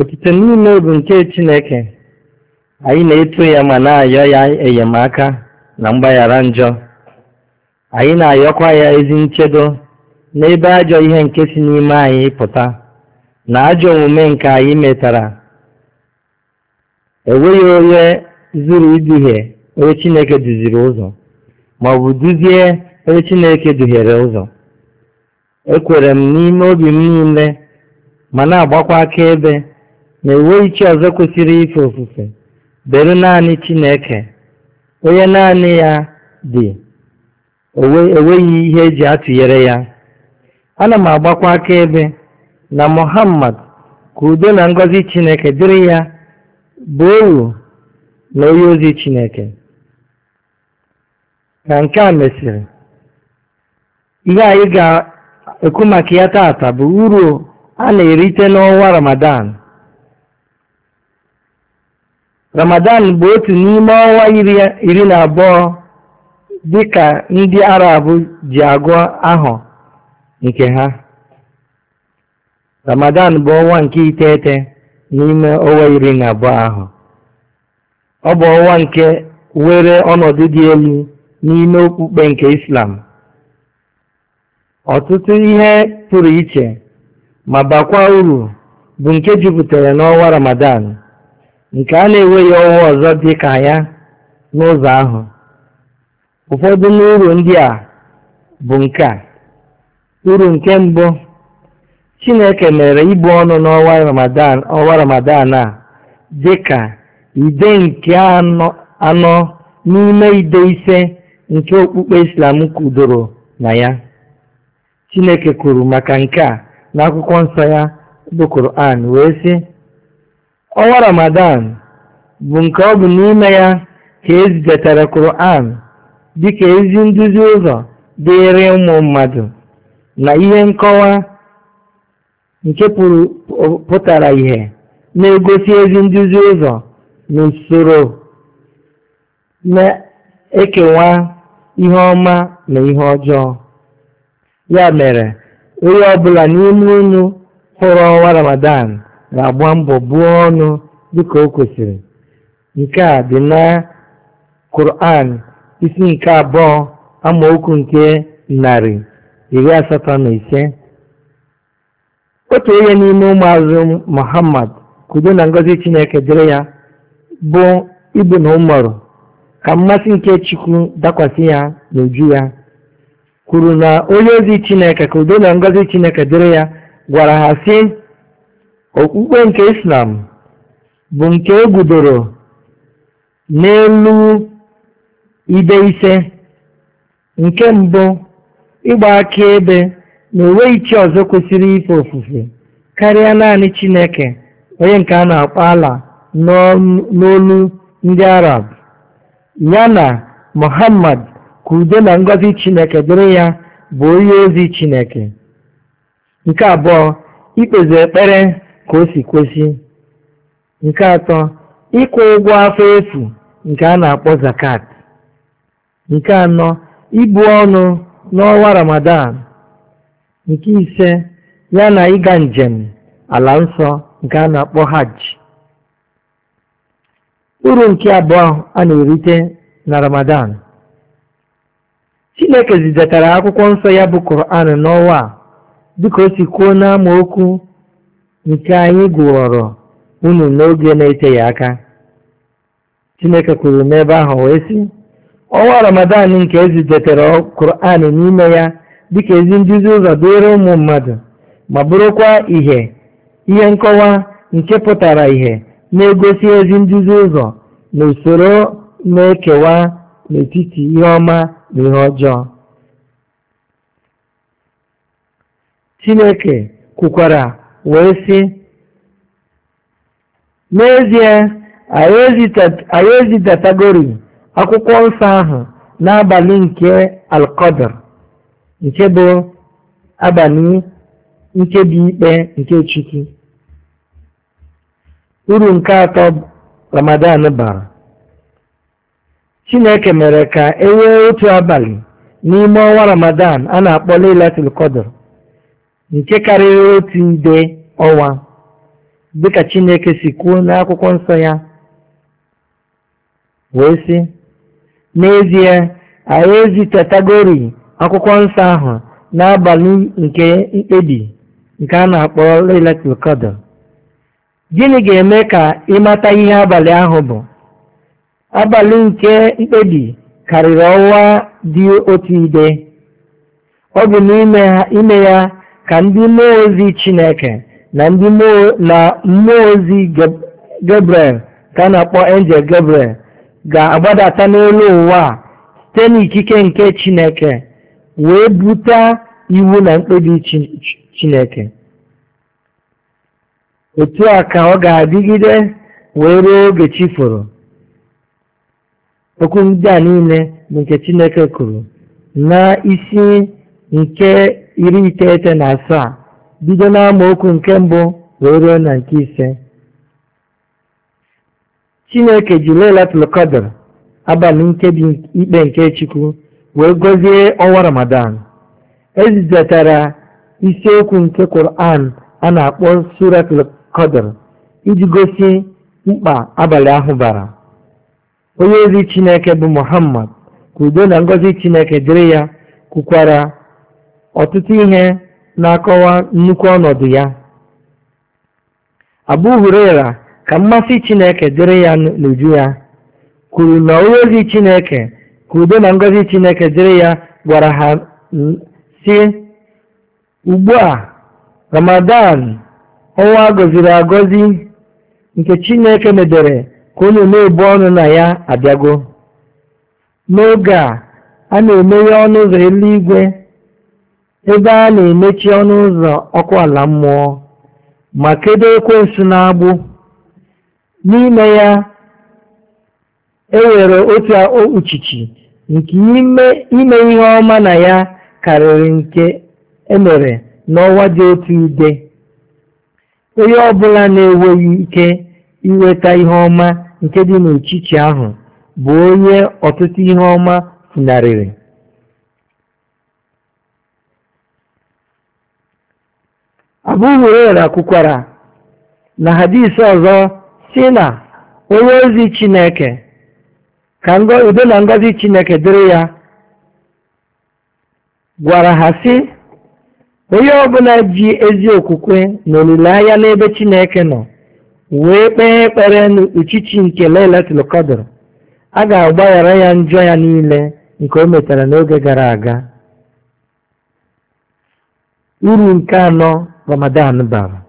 Otito niile bụ nke Chineke anyị na-eto ya ma na-ayọ ya enyemaka na mgbaghara njọ anyị na-ayọkwa ya ezi nchedo n'ebe ajọ ihe nke si n'ime anyị pụta na ajọ omume nke anyị metara enweghị onye zuru iduhie onye Chineke duziri ụzọ ma ọ bụ duzie onye Chineke duhiere ụzọ ekwere m n'ime obi m niile ma na-agbakwa akaebe na-enweghị chi ọzọ kwesịrị ife ofufe bere naanị Chineke onye naanị ya dị enweghị ihe eji atụnyere ya ana m agbakwa akaebe na Muhammad ka udo na ngọzi Chineke dịrị ya bụ owu na onye ozi Chineke ka nke a mesịrị ihe anyị ga-ekwu maka ya taata bụ uru a na-erite n'ọnwa Ramadan Ramadan bụ otu n'ime ọnwa iri na abụọ dịka ndị Arab ji agụ ahụ nke ha. Ramadan bụ ọnwa nke iteghete n'ime ọnwa iri na abụọ ahụ. Ọ bụ ọnwa nke were ọnọdụ dị elu n'ime okpukpe nke Islam. Ọtụtụ ihe pụrụ iche ma bakwa uru bụ nke jupụtara n'ọnwa Ramadan. nke a na-enweghị ọwa ọzọ dị ka ya n'ụzọ ahụ. Ụfọdụ n'uru ndị a bụ nke a: Uru nke mbụ, Chineke mere ibu ọnụ n'ọnwa Ramadan ọnwa Ramadan a dị ka ide nke anọ n'ime ide ise nke okpukpe Islam kwudoro na ya. Chineke kwuru maka nke a n'akwụkwọ nsọ ya bụ Koran wee sị ọnwa Ramadan bụ nke ọ bụ n'ime ya ka e zidatara Kur'an dịka ezi nduzi ụzọ dịịrị ụmụ mmadụ na ihe nkọwa nke pụtara ihe na-egosi ezi nduzi ụzọ n'usoro na-ekewa ihe ọma na ihe ọjọọ ya mere onye ọbụla n'ime unu hụrụ ọnwa Ramadan ga-agba mbọ buo ọnụ dịka o kwesịrị nke a dị na Quran isi nke abụọ amaokwu nke narị iri asatọ na ise otu onye n'ime ụmụazụ Muhammad kudo na ngọzi Chineke dịrị ya bụ Ibn Umar ka mmasị nke Chukwu dakwasị ya n'uju ya kwuru na onye ozi Chineke ka udo na ngozi Chineke dịrị ya gwara ha sị okpukpe nke islam bụ nke e n'elu ibe ise nke mbụ ịgba ebe na enweghị chi ọzọ kwesịrị ife ofufe karịa naanị chineke onye nke a na-akpọ ala n'olu ndị arab ya na muhammad ka udo na ngọzi chineke dịrị ya bụ onye ozi chineke nke abụọ ikpezi ekpere ka o si kwesị nke atọ ịkwụ ụgwọ afọ efu nke a na-akpọ zakat nke anọ ibu ọnụ n'ọnwa ramadan nke ise ya na ịga njem ala nsọ nke a na-akpọ hajj uru nke abụọ a na-erite na ramadan chineke zidatara akwụkwọ nsọ ya bụ koran n'ọnwa a dịka o si kwuo n'amaokwu nke anyị gụọrọ unu n'oge na-eteghị aka Chineke kwuru n'ebe ahụ wee sị ọnwa Ramadan nke ezidetere Quran n'ime ya dịka ezi nduzi ụzọ dịịrị ụmụ mmadụ ma bụrụkwa ihe ihe nkọwa nke pụtara ihe na-egosi ezi nduzi ụzọ na usoro na-ekewa n'etiti ihe ọma na ihe ọjọọ Chineke kwukwara wee sị n'ezie anyị ezidatagori akwụkwọ nsọ ahụ n'abalị nke alkọdr nke bụ abalị nkebi ikpe nke chukwu uru nke atọ ramadan bara chineke mere ka e nwee otu abalị n'ime ọnwa ramadan a na-akpọ lailatul qadr nke karịrị otu nde ọwa dịka Chineke si kwuo n'akwụkwọ nsọ ya wee sị n'ezie anyị ezitetagori akwụkwọ nsọ ahụ n'abalị nke mkpebi nke a na-akpọ Lailatul gịnị ga-eme ka ịmata ihe abalị ahụ bụ abalị nke mkpebi karịrị ọnwa dị otu ide ọ bụ n'ime ya ka ndị mmụọ ozi Chineke na mmụọ ozi Gabriel ka a na-akpọ Angel Gabriel ga-agbadata n'elu ụwa site n'ikike nke Chineke wee buta iwu na mkpebi Chineke otu a ka ọ ga-adịgide wee ruo oge chi foro okwu a niile bụ nke Chineke kwuru na isi nke iri iteghete na asaa bido n'amaokwu nke mbụ wee ruo na nke ise chineke ji lailatul abalị nkebi ikpe nke chukwu wee gọzie ọnwa ramadan ezidatara isiokwu nke Qur'an a na-akpọ suratul iji gosi mkpa abalị ahụ bara onye ozi chineke bụ muhammad ka udo na ngọzi chineke dịrị ya kwukwara ọtụtụ ihe na-akọwa nnukwu ọnọdụ ya Abụ Hurera, ka mmasị chineke dịrị ya n'uju ya kwuru na onye ozi chineke ka udo na ngọzi chineke dịrị ya gwara ha si ugbu a ramadan ọnwa gọziri agọzi nke chineke medere ka onye na-ebu ọnụ na ya abịago n'oge a a na-emeghe ọnụ ụzọ eluigwe ebe a na-emechi ọnụ ụzọ ọkụ ala mmụọ ma kedo na-agbụ N'ime ya, ewere nwere otu okpuchichi nke ime ihe ọma na ya karịrị nke emere mere n'ọnwa dị otu ide. Onye ọbụla na-enweghị ike inweta ihe ọma nke dị n'echichi ahụ bụ onye ọtụtụ ihe ọma funarịrị. abu huraira kwukwara na hadisi ọzọ si na onye ozi chineke ka udo na ngozi chineke dịrị ya gwara ha si onye ọbụla ji ezi okwukwe na olileanya n'ebe chineke nọ wee kpee ekpere n'uchichi nke lailatul qadr a ga-agbaghara ya njọ ya niile nke o metara n'oge gara aga uru nke anọ ramadan bara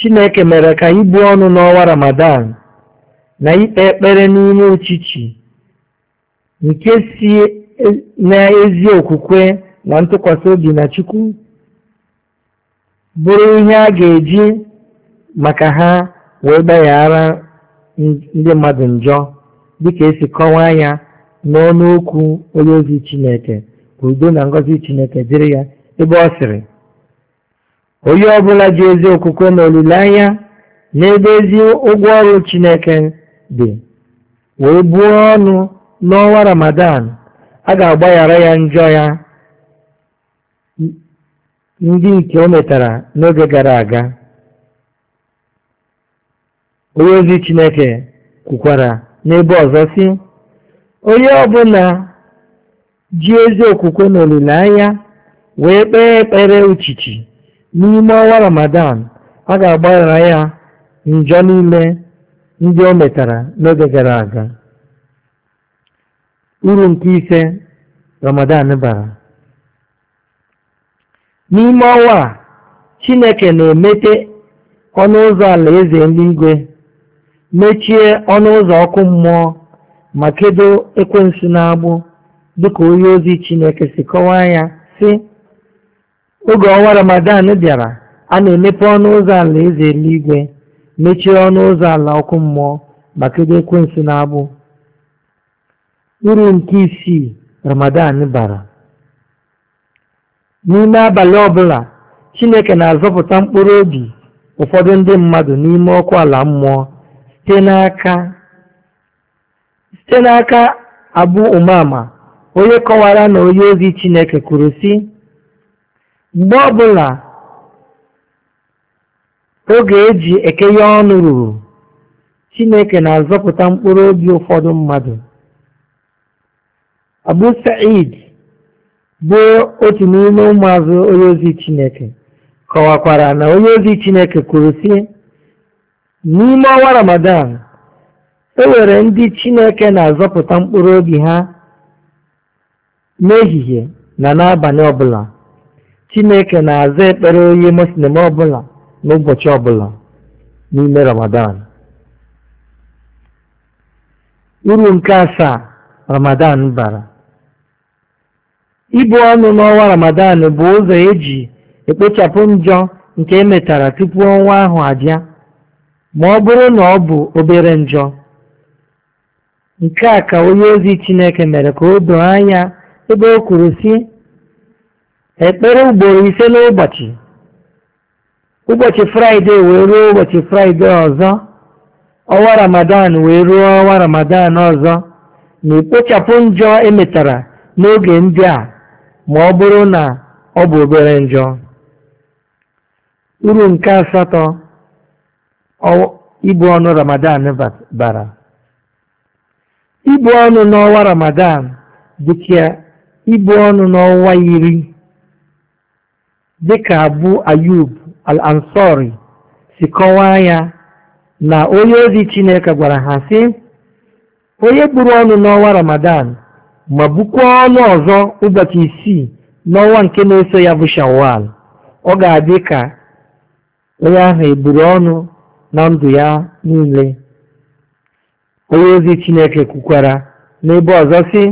chineke mere ka ibu ọnụ n'ọnwa ramadan na ikpe ekpere n'ime ochichi nke si n'ezi okwukwe na ntụkwasị obi na chukwu bụrụ ihe a ga-eji maka ha wee gbaghara ndị mmadụ njọ dịka esi kọwaa ya n'ọnụ okwu onye ozi chineke ka udo na ngọzi chineke dịrị ya ebe ọ sịrị onye ọbụla ji ezi okwukwe na olileanya n'ebe ezi ụgwọ ọrụ Chineke dị wee buo ọnụ n'ọnwa Ramadan a ga-agbaghara ya njọ ya ndị nke o metara n'oge gara aga onye ozi Chineke kwukwara n'ebe ọzọ si onye ọbụla ji ezi okwukwe na olileanya wee kpee ekpere uchichi N'ime ọnwa Ramadan, a ga-agbaghara ya njọ niile ndị o metara n'oge gara aga. Uru nke ise Ramadan bara n'ime ọnwa a Chineke na emete ọnụ ụzọ alaeze eluigwe mechie ọnụ ụzọ ọkụ mmụọ ma kedo ekwensu n'agbụ dịka onye ozi Chineke si kọwaa ya si oge ọnwa Ramadan bịara a na-emepe ọnụ ụzọ ala eze eluigwe mechie ọnụ ụzọ ala ọkụ mmụọ maka kedu ekwensu na-abụ uru nke isii Ramadan bara n'ime abalị ọbụla Chineke na-azọpụta mkpụrụ obi ụfọdụ ndị mmadụ n'ime ọkụ ala mmụọ site n'aka site n'aka Umama onye kọwara na onye ozi Chineke kwuru si. mgbe ọbụla oge e ji ekenye ọnụ ruru Chineke na-azọpụta mkpụrụ obi ụfọdụ mmadụ Abu Sa'id bụ otu n'ime ụmụazụ onye ozi Chineke kọwakwara na onye ozi Chineke kwuru sị n'ime ọnwa Ramadan e nwere ndị Chineke na-azọpụta mkpụrụ obi ha n'ehihie na n'abalị ọbụla Chineke na-aza ekpere onye Muslim ọbụla n'ụbọchị ọbụla n'ime Ramadan. Uru nke asaa Ramadan bara. Ibu ọnụ n'ọnwa Ramadan bụ ụzọ eji ekpochapụ njọ nke emetara tupu ọnwa ahụ abịa ma ọ bụrụ na ọ bụ obere njọ. Nke a ka onye ozi Chineke mere ka o doo anya ebe o kwuru sị ekpere ugboro ise n'ụbọchị ụbọchị fraịde wee ruo ụbọchị fraịde ọzọ ọnwa ramadan wee ruo ọnwa ramadan ọzọ na ekpochapụ njọ emetara n'oge ndị a ma ọ bụrụ na ọ bụ obere njọ uru nke asatọ ibu ọnụ ramadan bara ibu ọnụ n'ọnwa ramadan dịka ibu ọnụ n'ọnwa iri dịka Abu Ayub al-Ansori si kọwaa ya na onye ozi Chineke gwara ha si onye buru ọnụ n'ọnwa Ramadan ma bukwaa ọnụ ọzọ ụbọchị isii n'ọnwa nke na-eso ya bụ Shawwal ọ ga-adị ka onye ahụ eburu ọnụ na ndụ ya niile onye ozi Chineke kwukwara n'ebe ọzọ sị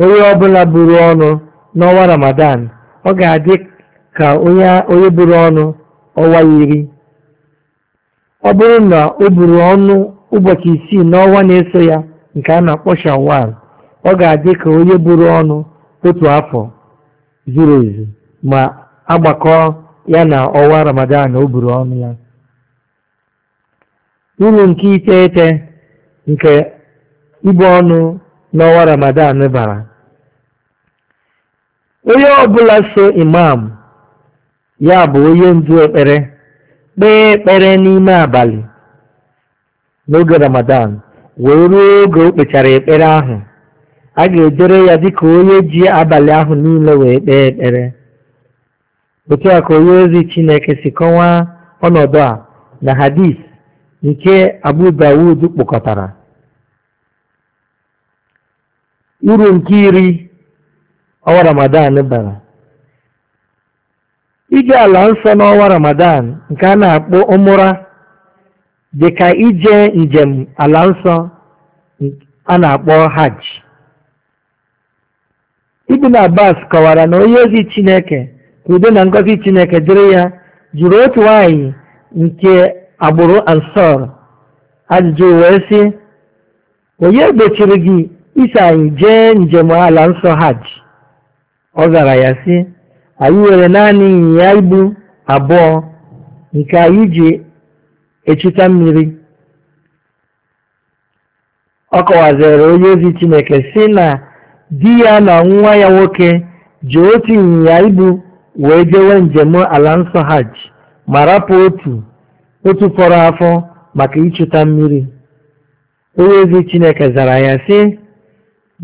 onye ọbụla buru ọnụ n'ọnwa Ramadan ọ ga-adị ka onye buru ọnụ ọnwa iri ọ bụrụ na o buru ọnụ ụbọchị isii n'ọnwa na-eso ya nke a na-akpọ shawal ọ ga-adị ka onye buru ọnụ otu afọ zuru ezu ma agbakọ ya na ọwa ramadan o buru ọnụ ya uru nke iteghete nke ibu ọnụ n'ọnwa ramadan bara onye ọbụla so imam ya bụ onye ndu ekpere kpee ekpere n'ime abalị n'oge ramadan wee ruo oge o kpechara ekpere ahụ a ga-edere ya dịka onye ji abalị ahụ niile wee kpee ekpere otu a ka onye ozi chineke si kọwaa ọnọdụ a na hadis nke abu dawud kpokọtara uru nke iri ọwa ramadan bara Ije ala nsọ n'ọnwa Ramadan nke a na-akpọ ụmụra dị ka ije njem ala nsọ a na-akpọ hajj. Ibn Abbas kọwara na onye ozi Chineke ka udo na ngozi Chineke dịrị ya jụrụ otu nwaanyị nke agbụrụ Ansar ajụjụ wee sị onye gbochiri gị iso anyị jee njem ala nsọ hajj? Ọ zara ya sị anyị nwere naanị ịnyịnya ibu abụọ nke anyị ji echita mmiri ọ kọwaziri onye ozi chineke si na di ya na nwa ya nwoke ji otu ịnyịnya ibu wee jewe njem ala nsọ hajj ma rapụ otu otu fọrọ afọ maka ịchụta mmiri onye ozi chineke zara ya sị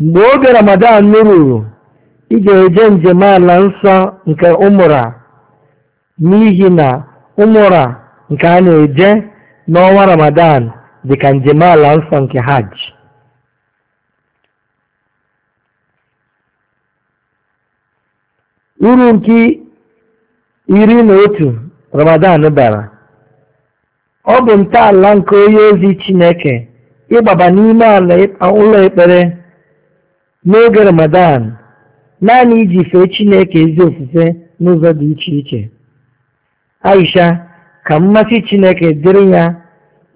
mgbe oge ramadan ruru ị ga-eje njem ala nsọ nke ụmụra n'ihi na ụmụra nke a na-eje n'ọnwa ramadan dịka njem ala nsọ nke hajj uru nke iri na otu ramadan bara ọ bụ ntọala nke onye ozi chineke ịgbaba n'ime ala ụlọ ekpere n'oge ramadan naanị iji fee Chineke ezi ofufe n'ụzọ dị iche iche Aisha ka mmasị Chineke dịrị ya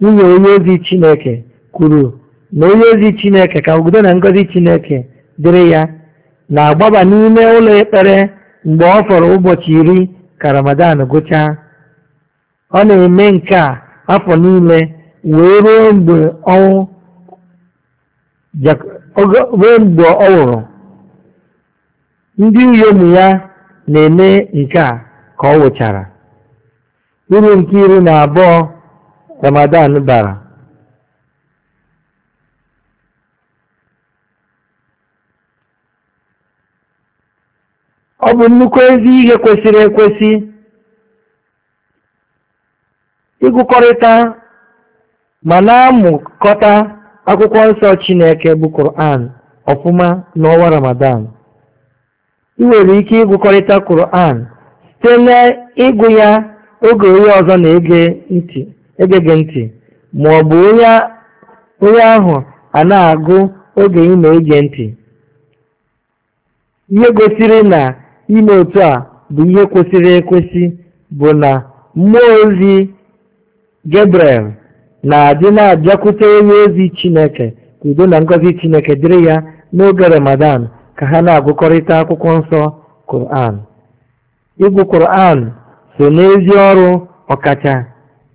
nwunye onye ozi Chineke kwuru na onye ozi Chineke ka udo na ngọzi Chineke dịrị ya na-agbaba n'ime ụlọ ekpere mgbe ọ fọrọ ụbọchị iri ka Ramadan gụchaa ọ na-eme nke a afọ niile wee ruo mgbe ọ nwụrụ Ndị inyom ya na-eme nke a ka ọ nwụchara. Uru nke iri na abụọ Ramadan bara ọ bụ nnukwu ezi ihe kwesịrị ekwesị ịgụkọrịta ma na-amụkọta akwụkwọ nsọ Chineke bụ Koran ọfụma n'ọnwa Ramadan ị nwere ike ịgụkọrịta kuran site n'ịgụ ya oge onye ọzọ na-ege ntị ege gị ntị ma ọ bụ onye ahụ a na-agụ oge ị na-ege ntị ihe gosiri na ime otu a bụ ihe kwesịrị ekwesị bụ na mmụọ ozi Gabriel na-adị na-abịakwute onye ozi Chineke ka udo na ngọzi Chineke dịrị ya n'oge Ramadan ka ha na-agụkọrịta akwụkwọ nsọ Quran ịgụ Quran so n'ezi ọrụ ọkacha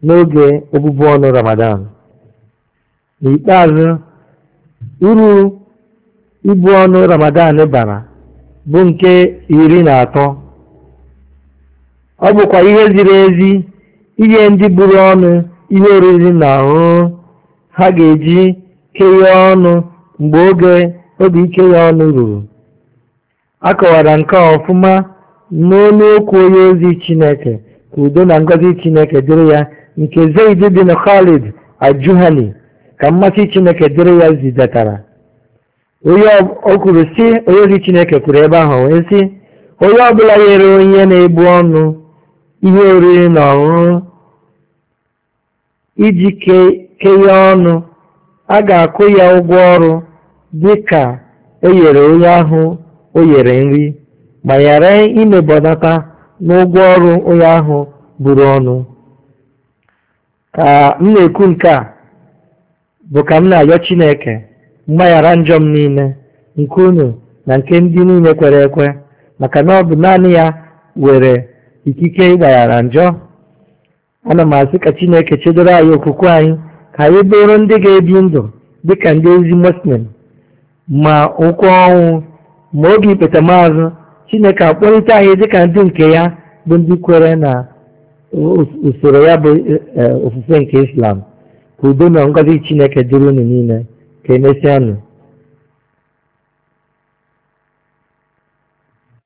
n'oge obubu ọnụ Ramadan n'ikpeazụ uru ibu ọnụ Ramadan bara bụ nke iri na atọ ọ bụkwa ihe ziri ezi ihe ndị buru ọnụ ihe oriri na ọṅụṅụ ha ga-eji kee ọnụ mgbe oge obi ike ya ọnụ ruru a nke ọfụma n'olu okwu onye ozi chineke ka udo na ngozi chineke dịrị ya nke zaid na khalid ajuhani ka mmasị chineke dịrị ya zidatara onye o si onye ozi chineke kwuru ebe ahụ wee si onye ọbụla nyere onye na-ebu ọnụ ihe oriri na ọṅụṅụ iji kenye ọnụ a ga akụ ya ụgwọ ọrụ dị ka e nyere onye ahụ o yere nri ma ghara imebọnata n'ụgwọ ọrụ onye ahụ buru ọnụ ka m na-ekwu nke a bụ ka m na-arịọ Chineke mgbaghara njọ m niile nke unu na nke ndị niile kwere ekwe maka na ọ bụ naanị ya were ikike ịgbaghara njọ ana m asị ka Chineke chedoro anyị okwukwe anyị ka anyị bụrụ ndị ga-ebi ndụ dịka ndị ezi muslim ma ụkwụ ọnwụ ma oge ikpetamazụ chineke akpọlite anyị dịka ndị nke ya bụ ndị kwere na usoro ya bụ e, e, ofufe nke islam ka udo na ngozi chineke dịrị unu niile ka emesịanụ